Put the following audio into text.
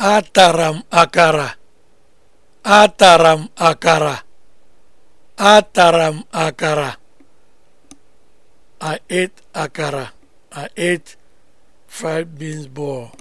Atara m akara. Atara m akara. Atara m akara. I ate akara. I ate fried beans ball.